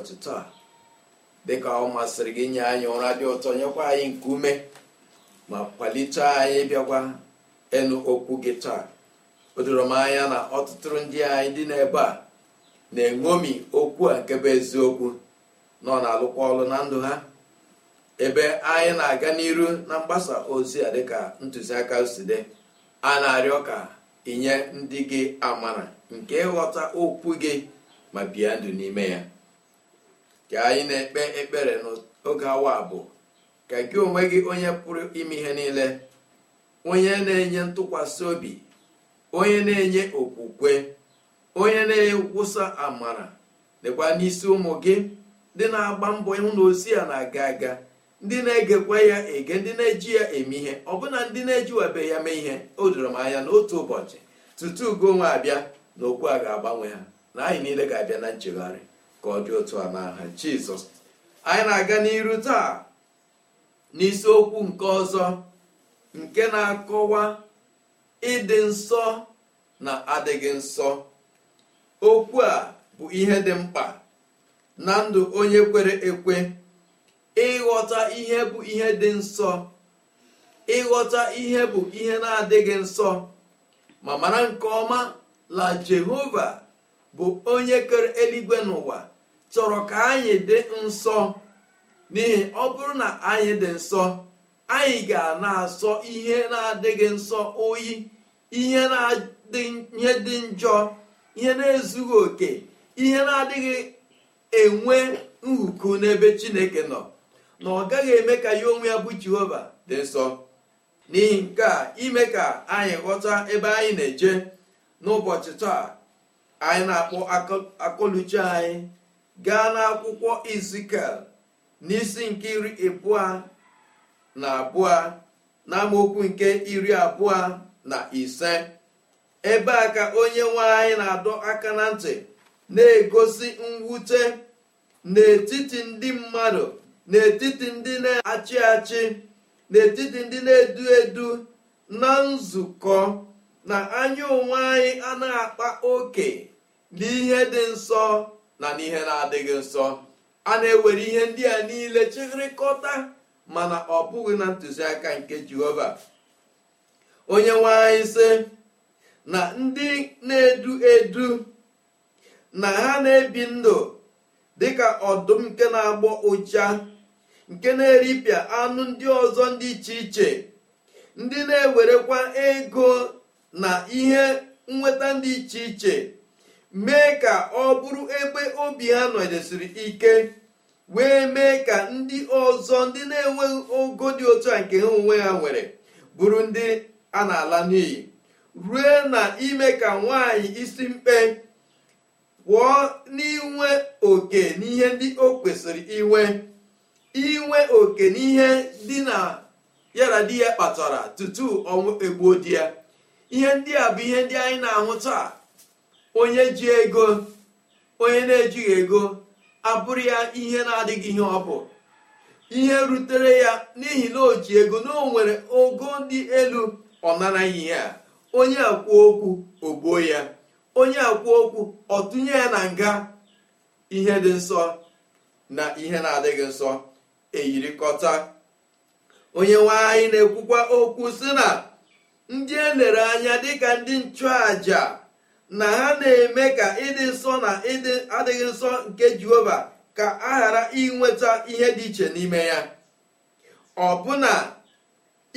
ụbọchị taa dịka ọ masịrị gị nye anyị ụra dị ụtọ nyekwa anyị nke ume ma kwalite anyị bịakwa ịnụ okwu gị taa o doro m anya na ọtụtụ ndị anyị dị n'ebe a na-eṅomi okwu a nke bụ eziokwu nọ na-alụkwa ọlụ na ndụ ha ebe anyị na-aga n'iru na mgbasa ozi a dịka ntụziaka si dị a na-arịọ ka inye ndị gị amara nke ịghọta okwu gị ma bie ndụ n'ime ya ka anyị na-ekpe ekpere n'oge awa abụọ ka gị onwe gị onye pụrụ ime ihe niile onye na-enye ntụkwasị obi onye na-enye okwukwe onye na-ekwusa amara dịkwa n'isi ụmụ gị ndị na-agba mbọ ịhụ na ozi ya na-aga aga ndị na-egekwa ya ege ndị na-eji ya eme ihe ọbụna ndị na-ejiwabe ya mee ihe o doro m anya n'otu ụbọchị tutu ugo onwe abịa na okwu a ga-agbanwe ha na anyị niile ga-abịa na nchegharị ka ọ dị otu a n'aha jizọs anyị na-aga n'iru taa n'isiokwu nke ọzọ nke na-akọwa ịdị nsọ na adịghị nsọ okwu a bụ ihe dị mkpa na ndụ onye kwere ekwe ịghọta ihe bụ ihe dị nsọ ịghọta ihe bụ ihe na-adịghị nsọ ma mara nke ọma la jehova bụ onye kere eluigwe n'ụwa chọrọ ka anyị dị nsọ n'ihi ọ bụrụ na anyị dị nsọ anyị ga na-asọ ihe na-adịghị nsọ oyi ihe dị njọ ihe na-ezughị oke ihe na-adịghị enwe nhuku n'ebe chineke nọ na ọ gaghị eme ka ya onwe ya bụ jehova dị nsọ n'ihi nke a ime ka anyị ghọta ebe anyị na-eje n'ụbọchị taa anyị na-akpọ akọluche anyị gaa n'akwụkwọ izikel n'isi nke iri abụọ na abụọ na nke iri abụọ na ise ebe a ka onye nwe anyị na-adọ aka na ntị na-egosi mwute n'etiti ndị mmadụ n'etiti ndị na-achị achị n'etiti ndị na-edu edu na nzukọ na anya onwe anyị a na-akpa oke n'ihe dị nsọ na n'ihe na-adịghị nsọ a na-ewere ihe ndị a niile chịrịkọta mana ọ bụghị na ntụziaka nke jehova onye nwe na ndị na-edu edu na ha na-ebi ndụ dịka ọdụm nke na-agbọ ụja nke na-eripịa anụ ndị ọzọ ndị iche iche ndị na-ewerekwa ego na ihe nnweta dị iche iche mee ka ọ bụrụ ebe obi ha nọdesiri ike wee mee ka ndị ọzọ ndị na-enweghị ogo dị otu a nke ha onwe ha nwere bụrụ ndị a na-ala n'iyi rue na ime ka nwaanyị isi mkpe pụọ n'inwe oke n'ihe ndị o kwesịrị inwe inwe oke n'ihe dị na yara di ya kpatara tutu ọnwụ egbuo di ya ihe ndị a bụ ihe ndị anyị na-ahụ taa onye ji ego onye na-ejighị ego abụrụ ya ihe na-adịghị ihe ọ bụ ihe rutere ya n'ihi na o ji ego na o nwere ogo dị elu ọ nara ihe a onye akwụ okwu ogbuo ya onye akwụ okwu ọ tụnye ya na nga ihe dị nsọ na ihe na-adịghị nsọ eyirikọta onye nwe na-ekwukwa okwu sị na ndị elere anya dịka ndị nchụàja na ha na-eme ka ịdị nsọ na ịdị adịghị nsọ nke jehova ka a ghara inweta ihe dị iche n'ime ya ọbụna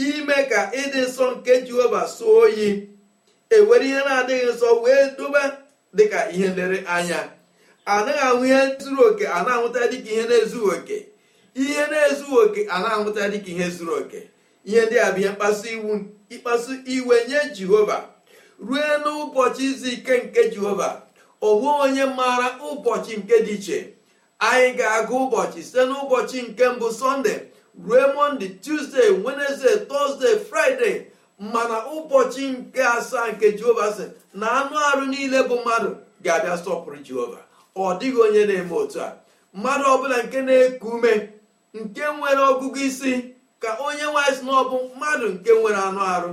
ime ka ịdị nsọ nke jehova soo oyi ewere ihe na-adịghị nsọ wee doba dịka ihe nlere anya anaghị ahụ ihe zuru oke a na-ahụta dịka ihe na-ezughị oke ihe na-ezughị oke a na-ahụta dịka ihe zuru oke ihe ndị a bụ ihe mkpasu iwu ịkpasu iwe nye jehova rue n'ụbọchị izu ike nke jehova onwe onye maara ụbọchị nke dị iche anyị ga-agụ ụbọchị site n'ụbọchị nke mbụ sọnde rue mọnde tuzdee wenezde tọzdee fraịde mana ụbọchị nke asaa nke jehova sị na anụ arụ niile bụ mmadụ ga-abịa sọpụrụ jehova ọ dịghị onye na-eme otu a mmadụ ọbụla nke na-eku ume nke nwere ọgụgụ isi ka onye nwanyị si bụ mmadụ nke nwere anụ arụ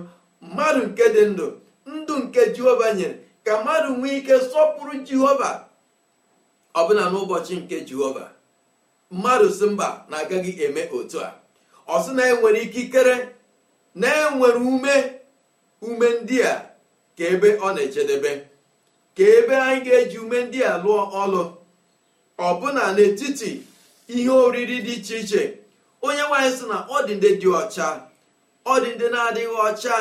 mmadụ nke dị ndụ ndụ nke jehova nyere ka mmadụ nwee ike sọpụrụ jehova ọbụna n'ụbọchị nke jehova mmadụ si mba na-agaghị eme otu a ọ sị na enwere ikikere na-enwere ume ume ndị a ka ebe ọ na-ejedebe ka ebe anyị ga-eji ume ndị a lụọ ọlụ ọbụna n'etiti ihe oriri dị iche iche onye nwaanyị sị na ọ dị dị ọcha ọ dị ndị na-adịghị ọcha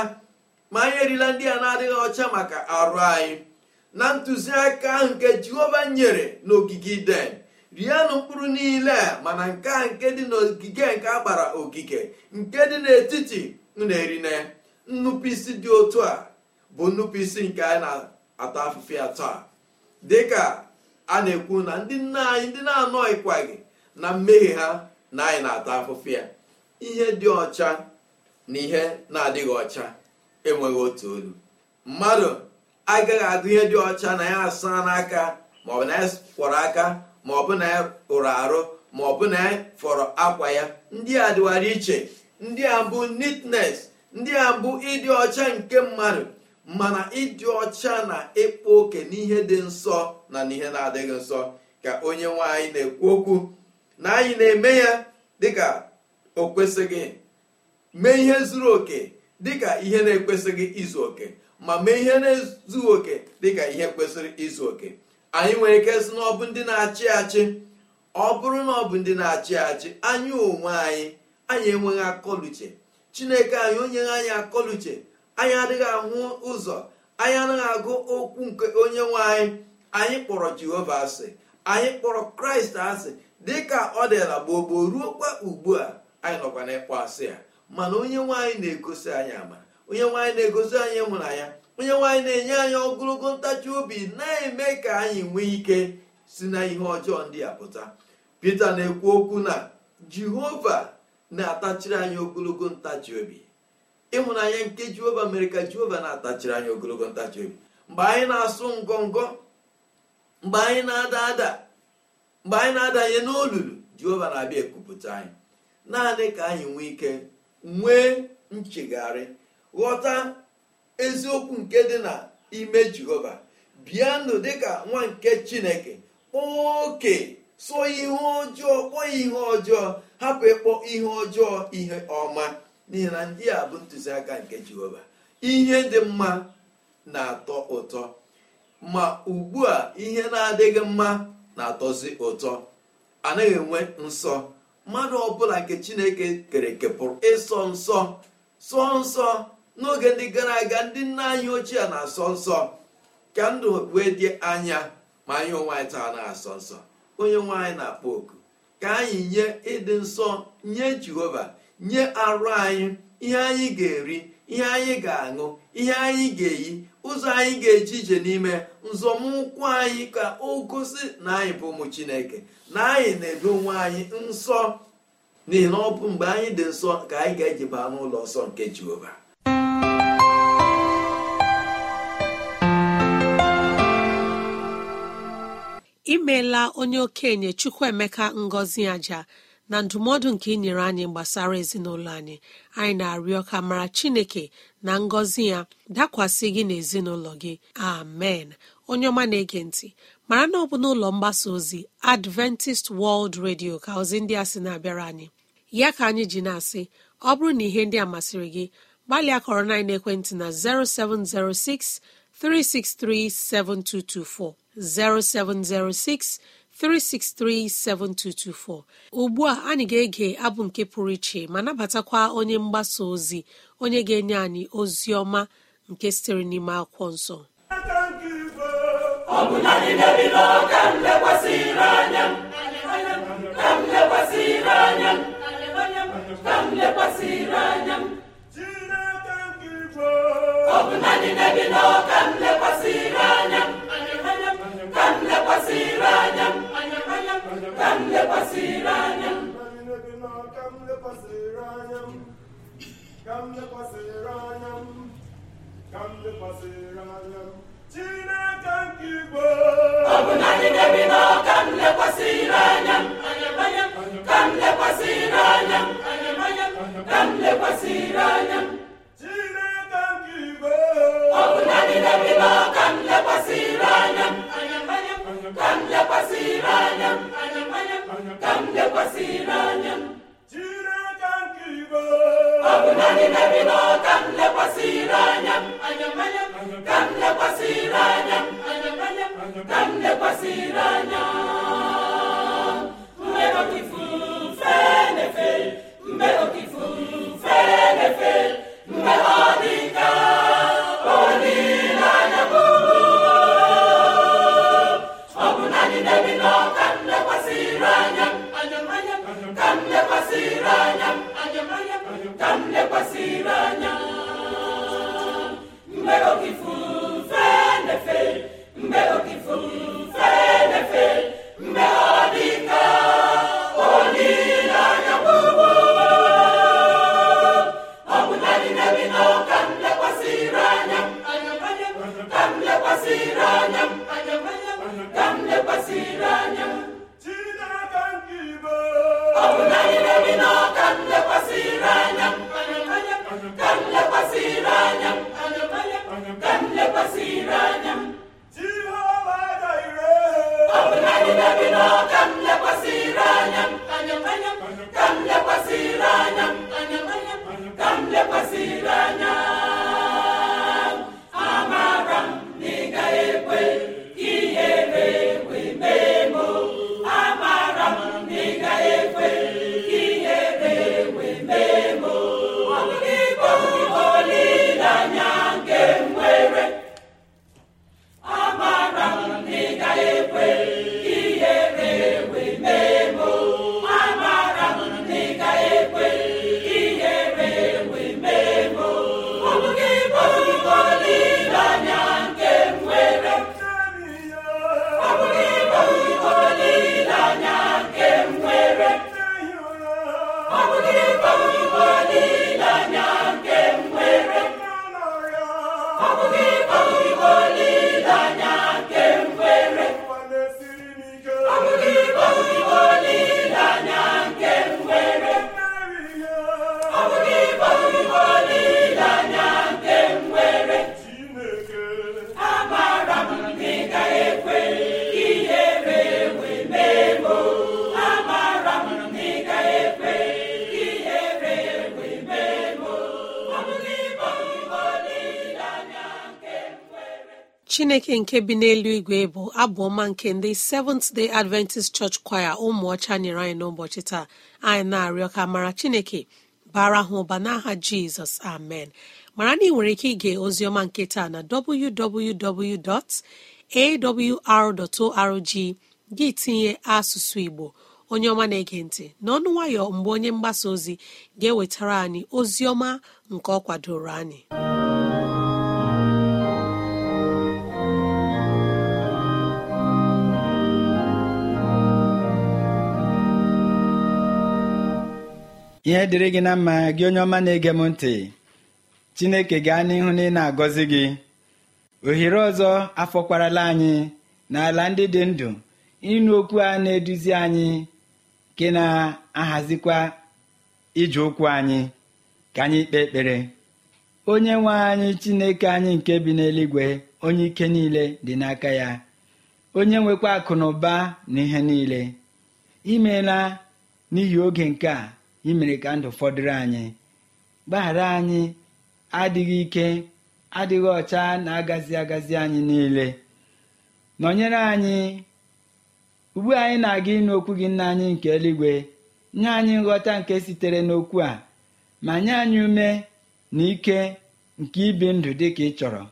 ma anyị erila ndị a na-adịghị ọcha maka arụ anyị na ntụziaka ahụ nke jehova nyere n'ogige iden rienụ mkpụrụ niile mana nke a nke dị n'ogige nke a ogige nke dị n'etiti na-erine nnupụisi dị otu a bụ nnupụisi nke anyị na-ata afụfịa ya taa dịka a na-ekwu na ndị nna anyị ndị na-anọghịkwaghị na mmehie ha na anyị na-ata afụfụ ya ihe dị ọcha na ihe na-adịghị ọcha enweghị otu olu mmadụ agaghị agụ ihe dị ọcha na ya asa n'aka maọbụ na ya kwọrọ aka maọbụ na ya rụrụ arụ maọbụ na ya fọrọ akwa ya ndị a dịwara iche ndị a bụ neatness ndị a bụ ịdị ọcha nke mmadụ mana ịdị ọcha na ịkpa oke n'ihe dị nsọ na n'ihe na-adịghị nsọ ka onye nwaanyị na-ekwu okwu na anyị na-eme ya dịka o kwesịghị mee ihe zuru oke dịka ihe na-ekwesịghị izu oke ma mee ihe na-ezughị oke dịka ihe kwesịrị izu oke anyị nwere ike sị na ọ bụ ndị na-achị achị ọ bụrụ na ọ bụ ndị na-achị achị anyị onwe anyị anyị enweghị akọluche chineke anyị onye anyị akọluche anyị adịghị ahụ ụzọ anyị anaghị agụ okwu nke onye nwe anyị anyị kpọrọ jehova asị anyị kpọrọ kraịst asị dịka ọ dịla gboo ruo ruokwa ugbu a anyị nọkwa ịkpọ asị ya mana onye nwaanyị na-egosi anyị amara onye nwaanyị na-egosi anyị ịhụnanya onye nwaanyị na-enye anyị ogologo ntachi obi na-eme ka anyị nwee ike si na ihe ọjọọ ndị a pụta Pita na-ekwu okwu na Jehova na-atachiri anyị ogologo ntachi obi ịhụnanya nke Jehova mere ka Jehova na-atachiri anyị ogologo ntachi obi mgbe anyị na-asụ ngọngọ mgbe anyị na-ada ada mgbe anyị na-adanye n'olulu Jehova na-abịa ekupụta anyị naanị ka anyị nwee ike nwee nchegharị ghọta eziokwu nke dị na ime jehova bịanụ dịka nwa nke chineke kpọọ oke sụọ ihe ọjọọ kpọọ ihe ọjọọ hapụ ịkpọ ihe ọjọọ ihe ọma n'ihi na ndị a bụ ntụziaka nke jehova ihe dị mma na-atọ ụtọ ma ugbu a ihe na-adịghị mma na-atọzi ụtọ anaghị enwe nsọ mmadụ ọbụla nke chineke kere eke ịsọ nsọ sọ nsọ n'oge ndị gara aga ndị nna anyị ochie na-asọ nsọ ka ndụ wee dị anya ma anyị onwe anyị taa na-asọ nsọ onye nwe na-akpọ oku ka anyị nye ịdị nsọ nye jehova nye arụ anyị ihe anyị ga-eri ihe anyị ga-aṅụ ihe anyị ga-eyi ụzọ anyị ga-eji ije n'ime nzọmụkwụ anyị ka o gosi na anyị bụ ụmụ chineke na anyị na-edo onwe anyị nsọ n'ihi na mgbe anyị dị nsọ ka anyị ga-eji baa n'ụlọ nsọ nke jehova imeela onye okenye chukwuemeka ngọzi aja na ndụmọdụ nke ị nyere anyị gbasara ezinụlọ anyị anyị na-arịọ ka mara chineke na ngọzi ya dakwasị gị na ezinụlọ gị amen onye ọma na-ege ntị mara na ọ bụ n'ụlọ mgbasa ozi adventist world radio ka ozi ndị a sị na-abịara anyị ya ka anyị ji na-asị ọ bụrụ na ihe ndị a masịrị gị gbalịa kọrọ na ekwentị na 0706 363 7224 0706 363-7224 ugbu a anyị ga-ege abụ nke pụrụ iche ma nabatakwa onye mgbasa ozi onye ga-enye anyị ozi ọma nke sitere n'ime akwụkwọ nsọ ọ bụ naanị m lekwasịrị anya anya ka m lekwasịrị anya ka m lekwasịrị anya ka m anya Chineke nke igwe ọ bụ na anyị na-ebi n'ọka m lekwasịrị anya ka m lekwasịrị anya ka m lekwasịrị anya Chineke ọ bụ na anyị na-ebi n'ọka m lekwasịrị anya ka m lekwasịrị anya ka m lekwasị n'anya m ọ bụ naanị n'ebe nọ ka m lekwasị n'anya m ka m lekwasị n'anya m ka m lekwasị n'anya mgbe okifu fenefe mgbe okifu fenefe mgbe ọ dị ka olileanya bụ ọ bụ naanị n'ebe nọ chineke nke bi n'elu igwe bụ abụ ọma nke ndị seventh day adventist church choir ụmụ ọcha nyere anyị n'ụbọchị taa anyị na-arịọ ka mara chineke bara ha ụba n'aha jizọs amen mara na ị nwere ike ige oziọma nke taa na awr.org gị tinye asụsụ igbo onye ọma na-ege ntị n'ọnụ nwayọ mgbe onye mgbasa ozi ga-ewetara anyị oziọma nke ọ kwadoro anyị ihe dịrị gị na mma gị onye ọma na-ege m ntị chineke gaa n'ihu na ị na-agọzi gị ohere ọzọ afọkwarala anyị n'ala ndị dị ndụ ịnụ okwu a na-eduzi anyị nke na-ahazikwa ije okwu anyị ka anyị kpee ekpere onye nwe anyị chineke anyị nke bi n'eluigwe onye ike niile dị n'aka ya onye nwekwa akụ na ụba na ihe niile imeela n'ihi oge nke a imere ka ndụ fọdụrụ anyị gbaghara anyị adịghị ike adịghị ọcha na-agazi agazi anyị niile nọnyere anyị ugbu anyị na-aga ịnụ okwu gị nna anyị nke eluigwe nye anyị nghọta nke sitere n'okwu a ma nye anyị ume na ike nke ibi ndụ dị ka ị chọrọ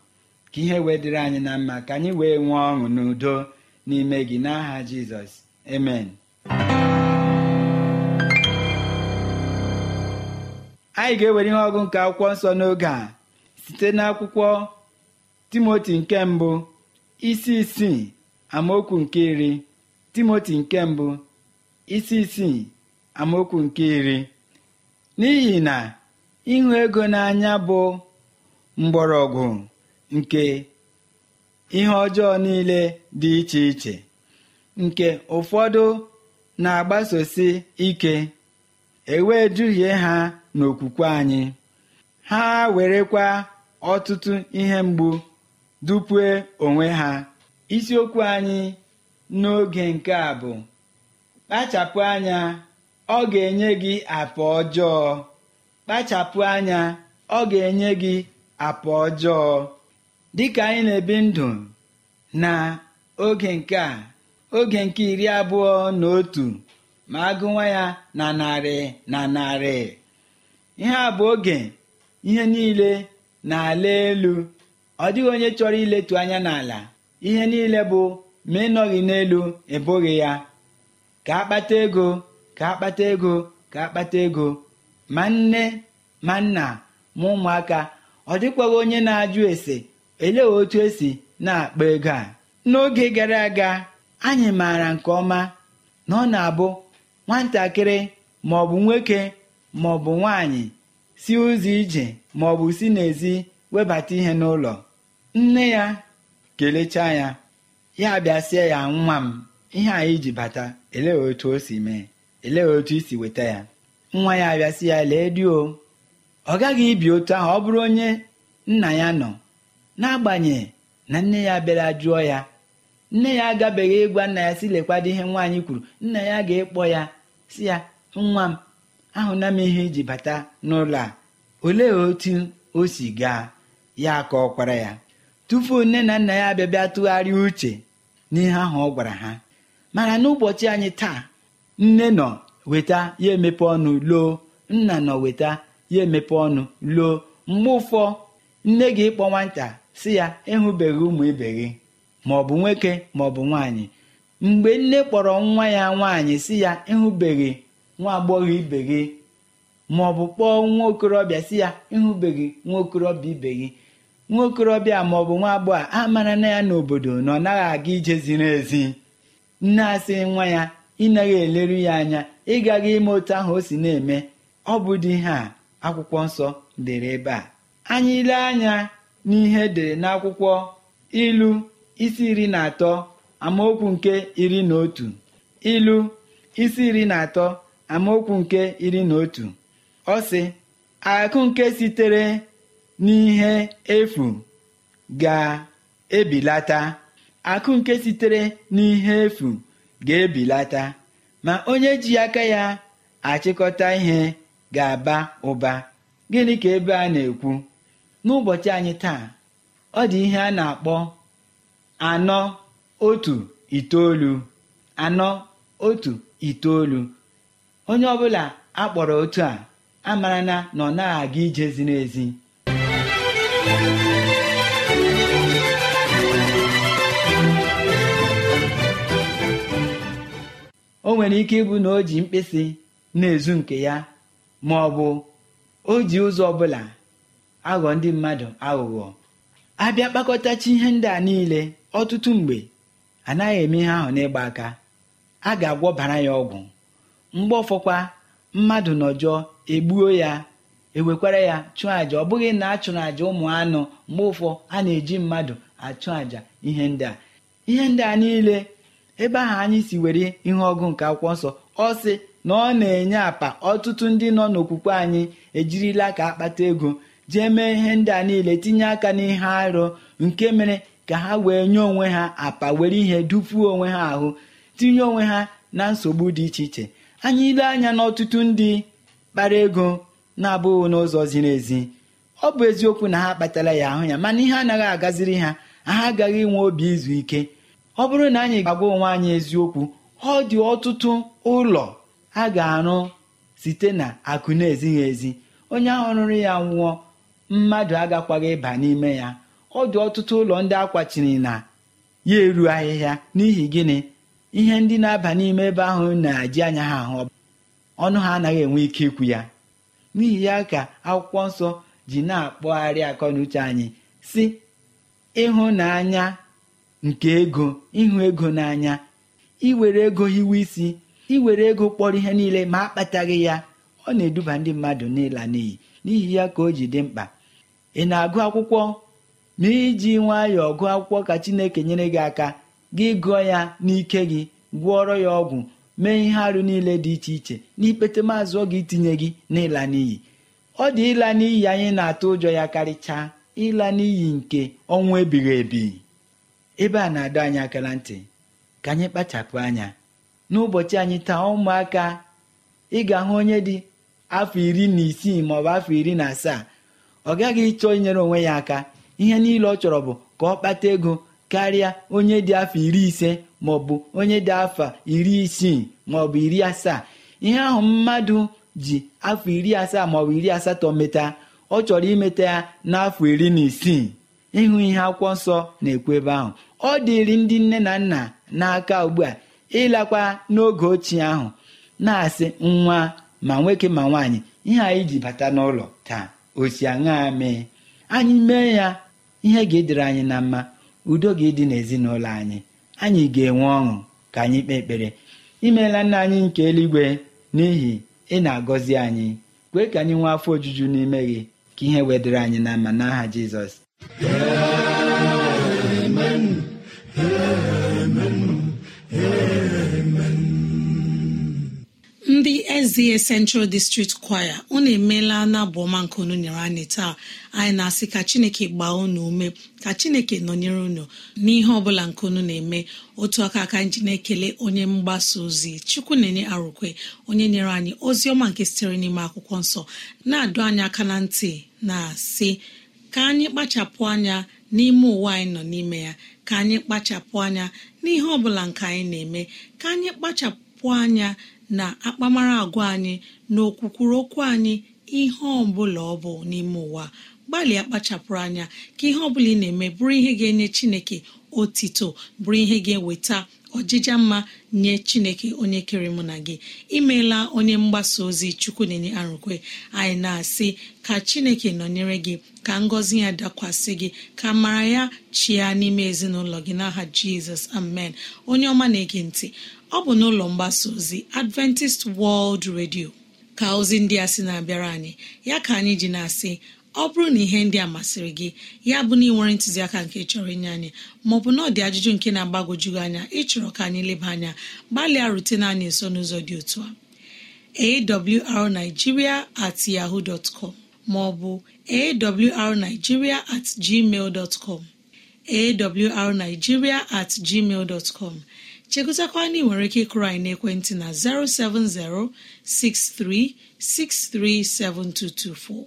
ka ihe wee dịrị anyị na mma ka anyị wee nwee ọṅụ n'udo n'ime gị n'aha Jizọs amen anyị ga-ewere ihe ọgụ nke akwụkwọ nsọ n'oge a site n'akwụkwọ timoti nke mbụ isi isii amaokwu nke iri timoti nke mbụ isi isii amaokwu nke iri n'ihi na ịhụ ego n'anya bụ mgbọrọgwụ nke ihe ọjọọ niile dị iche iche nke ụfọdụ na-agbasosi ike ewe duhie ha n'okwukwe anyị ha werekwa ọtụtụ ihe mgbu dupue onwe ha isiokwu anyị n'oge nke a bụ kpachapụ anya ọ ga-enye gị apa ọjọọ kpachapụ anya ọ ga-enye gị apa ọjọọ dịka anyị na-ebi ndụ na oge nke a oge nke iri abụọ na otu ma agụwa ya na narị na narị ihe a bụ oge ihe niile na-ala elu ọ dịghị onye chọrọ iletu anya n'ala ihe niile bụ ma ịnọghị n'elu ebughị ya ka akpata ego ka akpata ego ka akpata ego ma nne ma nna ma ụmụaka ọ dịkwaghị onye na-ajụ ese elee otu esi na-akpa ego a n'oge gara aga anyị maara nke ọma na ọ na-abụ nwatakịrị ma nwoke maọbụ nwaanyị si ụzọ ije maọbụ si n'ezi webata ihe n'ụlọ nne ya kelechaa ya ya bịasịa ya nwa m ihe anyị ji bata elee otu o si mee elee otu isi weta ya nwa ya abịasị ya lee di o ọ gaghị ibi otu ahụ ọ bụrụ onye nna ya nọ n'agbanyeghị na nne ya bịara jụọ ya nne ya agabeghị ịgwa nna ya si lekwado ihe nwaanyị kwuru nna ya ga-ekpọ ya si ya nwa m ahụna m ihe iji bata n'ụlọ a olee otu o si gaa ya ka ọ kwara ya tupu nne na nna ya abịabịa tụgharịa uche n'ihe ahụ ọ gwara ha mana n'ụbọchị anyị taa nne nọ weta ya emepe ọnụ loo nna nọ weta ya emepe ọnụ loo mgbe ụfọ nne gị ịkpọ nwata si ya ịhụbeghị ụmụ ibe gị maọbụ nwoke maọbụ nwaanyị mgbe nne kpọrọ nwa ya nwaanyị si ya ịhụbeghị nwa agbọghọ ibe gị ma ọ bụ kpọọ nwa okorobịa si ya ịhụbeghị nwa okorobịa ibe gị nwa okorobịa ma ọ bụ nwa agbọghọ a mara na ya n'obodo na ọ naghị aga ije ziri ezi nne asị nwa ya ịnaghị eleru ya anya ịgaghị ime otu ahụ o si na-eme ọ bụ dị ihe a akwụkwọ nsọ dere ebe a anyị ile anya n'ihe edere n'akwụkwọ ilu isi iri na atọ amaokwu nke iri na otu ilu isi iri na atọ amaokwu nke iri na otu ọ sị akụ nke sitere n'ihe efu ga-ebilata akụ nke sitere n'ihe efu ga-ebilata ma onye ji aka ya achịkọta ihe ga-aba ụba gịnị ka ebe a na-ekwu n'ụbọchị anyị taa ọ dị ihe a na-akpọ anọ otu itoolu anọ otu itoolu onye ọbụla akpọrọ otu a amarana na ọ na aga ije ziri ezi o nwere ike ịbụ na o ji mkpịsị na-ezu nke ya ma ọ bụ o ji ụzọ ọ bụla aghọ ndị mmadụ aghụghọ abịa kpakọtachi ihe ndị a niile ọtụtụ mgbe anaghị eme ihe ahụ n'ịgba aka a ga-agwọbara ya ọgwụ mgbe ọfọkwa mmadụ nọjọọ egbuo ya ewekwara ya chụọ àjà ọ bụghị na a chụrụ àjà ụmụ anụ mgbe ụfọ a na-eji mmadụ achụ àjà ihe ndị a ihe ndị a niile ebe ahụ anyị si were ihe ọgụ nke akwụkwọ nsọ ọ sị na ọ na-enye apa ọtụtụ ndị nọ n'okwukwe anyị ejirila ka akpata ego jee mee ihe ndị a niile tinye aka n'ihe arụ nke mere ka ha wee nye onwe ha apa were ihe dupuo onwe ha ahụ tinye onwe ha na nsogbu dị iche iche anyị ile anya n'ọtụtụ ndị kpara ego na-abụghị n'ụzọ ziri ezi ọ bụ eziokwu na ha kpatara ya ahụ ya mana ihe anaghị agaziri ha ha agaghị inwe obi izu ike ọ bụrụ na anyị ga-agwa onwe anyị eziokwu ọ dị ọtụtụ ụlọ a ga-arụ site na akụ na-ezighị ezi onye ahụ rụrụ ya nwụọ mmadụ agakwaghị ịba n'ime ya ọ dị ọtụtụ ụlọ ndị akwachiri na ya eru ahịhịa n'ihi gịnị ihe ndị na-aba n'ime ebe ahụ na-eji anya ha ahụ ọnụ ha anaghị enwe ike ikwu ya n'ihi ya ka akwụkwọ nsọ ji na-akpọgharị akọ na uche anyị si ịhụnanya nke ego ịhụ ego n'anya iwere ego hiwe isi iwere ego kpọrọ ihe niile ma akpataghị ya ọ na-eduba ndị mmadụ n'ịla n'iyi n'ihi ya ka o ji dị mkpa ị na-agụ akwụkwọ ma iji nwayọọ gụọ akwụkwọ ka Chineke nyere gị aka gị gụọ ya n'ike gị gwụọrọ ya ọgwụ mee ihe arụ niile dị iche iche n'ikpete maazụ oge itinye gị n'ịla n'iyi ọ dị ịla n'iyi anyị na-atụ ụjọ ya karịchaa ịla n'iyi nke ọnwụ ebighị ebi ebe a na-adọ anyị akara ntị ka anyị kpachapụ anya n'ụbọchị anyị taa ụmụaka ị ga-ahụ onye dị afọ iri na isii maọbụ afọ iri na asaa ọ gaghị ịchọ inyere onwe ya aka ihe niile ọ chọrọ bụ ka ọ kpata ego karịa onye dị afọ iri ise maọbụ onye dị afọ iri isii maọbụ iri asaa ihe ahụ mmadụ ji afọ iri asaa maọbụ iri asatọ meta ọ chọrọ imeta ya n'afọ iri na isii ịhụ ihe akwụkwọ nsọ na-ekwu ebe ahụ ọ dịrị ndị nne na nna n'aka ugbu a ịlakwa n'oge ochie ahụ na-asị nwa ma nwoke ma nwaanyị ihe anyị ji bata n'ụlọ taa osi aṅa mee anyị mee ya ihe ga-edere anyị na mma udo gị dị n'ezinụlọ anyị anyị ga-enwe ọṅụ ka anyị kpee ekpere imeela nna anyị nke eluigwe n'ihi ị na-agọzi anyị kwee ka anyị nwee afọ ojuju n'ime gị ka ihe wedịre anyị na mma n'aha jizọs ndị eze central district Choir unu emeela na ọma nke unu nyere anyị taa anyị na-asị ka chineke gbaa unu ume ka chineke nọnyere unu n'ihe ọbụla nke unu na-eme otu aka aka nji na-ekele onye mgbasa ozi chukwu na-enye arụkwe onye nyere anyị ozi ọma nke sitere n'ime akwụkwọ nsọ na-adụ anyị aka na ntị na-asị ka anyị kpachapụ anya n'ime ụwa anyị nọ n'ime ya ka anyị kpachapụ anya n'ihe ọbụla nke anyị na-eme ka anyị kpachapụ anya na akpamara agwa anyị na okwukwuru okwu anyị ihe ọbụla ọ bụ n'ime ụwa gbalịa kpachapụrụ anya ka ihe ọbụla ị na-eme bụrụ ihe ga-enye chineke otito bụrụ ihe ga-eweta ọjịja mma nye chineke onye kere mụ na gị imeela onye mgbasa ozi chukwu na arụkwe anyị na-asị ka chineke nọnyere gị ka ngọzi ya dakwasị gị ka mara ya chia n'ime ezinụlọ gị n'aha jizọs amen onye ọma na-ege ntị ọ bụ n'ụlọ mgbasa ozi adventist world radio ka ozi ndị a sị na-abịara anyị ya ka anyị ji na-asị ọ bụrụ na ihe ndị a masịrị gị ya bụ na ị nwere ntụziaka nke chọrọ inye anyị maọbụ na ọ dị ajụjụ nke na-agbagojugị anya ịchọrọ ka anyị leba anya gbalịa rutena anyị nso n'ụzọ dị otu a awrnigeria at yahoo dot com maọbụ awrnigeria at gmail dot com awrnigeria at gmail dot com chegotakwana ị nwere ike ịkụrụ anyị na'ekwentị na 07063637224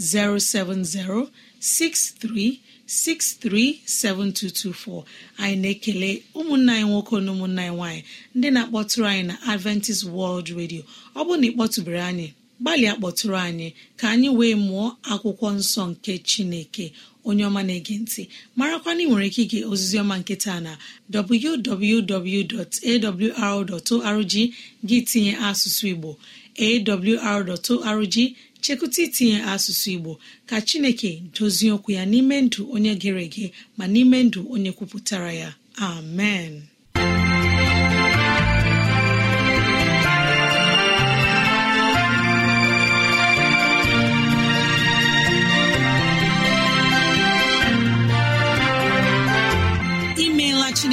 07063637224 anyị na-ekele ụmụnna anyị nwoke na ụmụnna anyị nwaanyị ndị na-akpọtụrụ anyị na Adventist World Radio ọ bụrụ na ị kpọtụbere anyị gbalịa kpọtụrụ anyị ka anyị wee mụọ akwụkwọ nsọ nke Chineke onye ọma na-ege ntị marakwa na ị nwere ike ige ozizi ọma nkịta na www.awr.org gị tinye asụsụ Igbo awr.org chekụta itinye asụsụ Igbo ka Chineke dozie okwu ya n'ime ndụ onye gere ege ma n'ime ndụ onye kwupụtara ya amen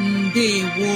ndewo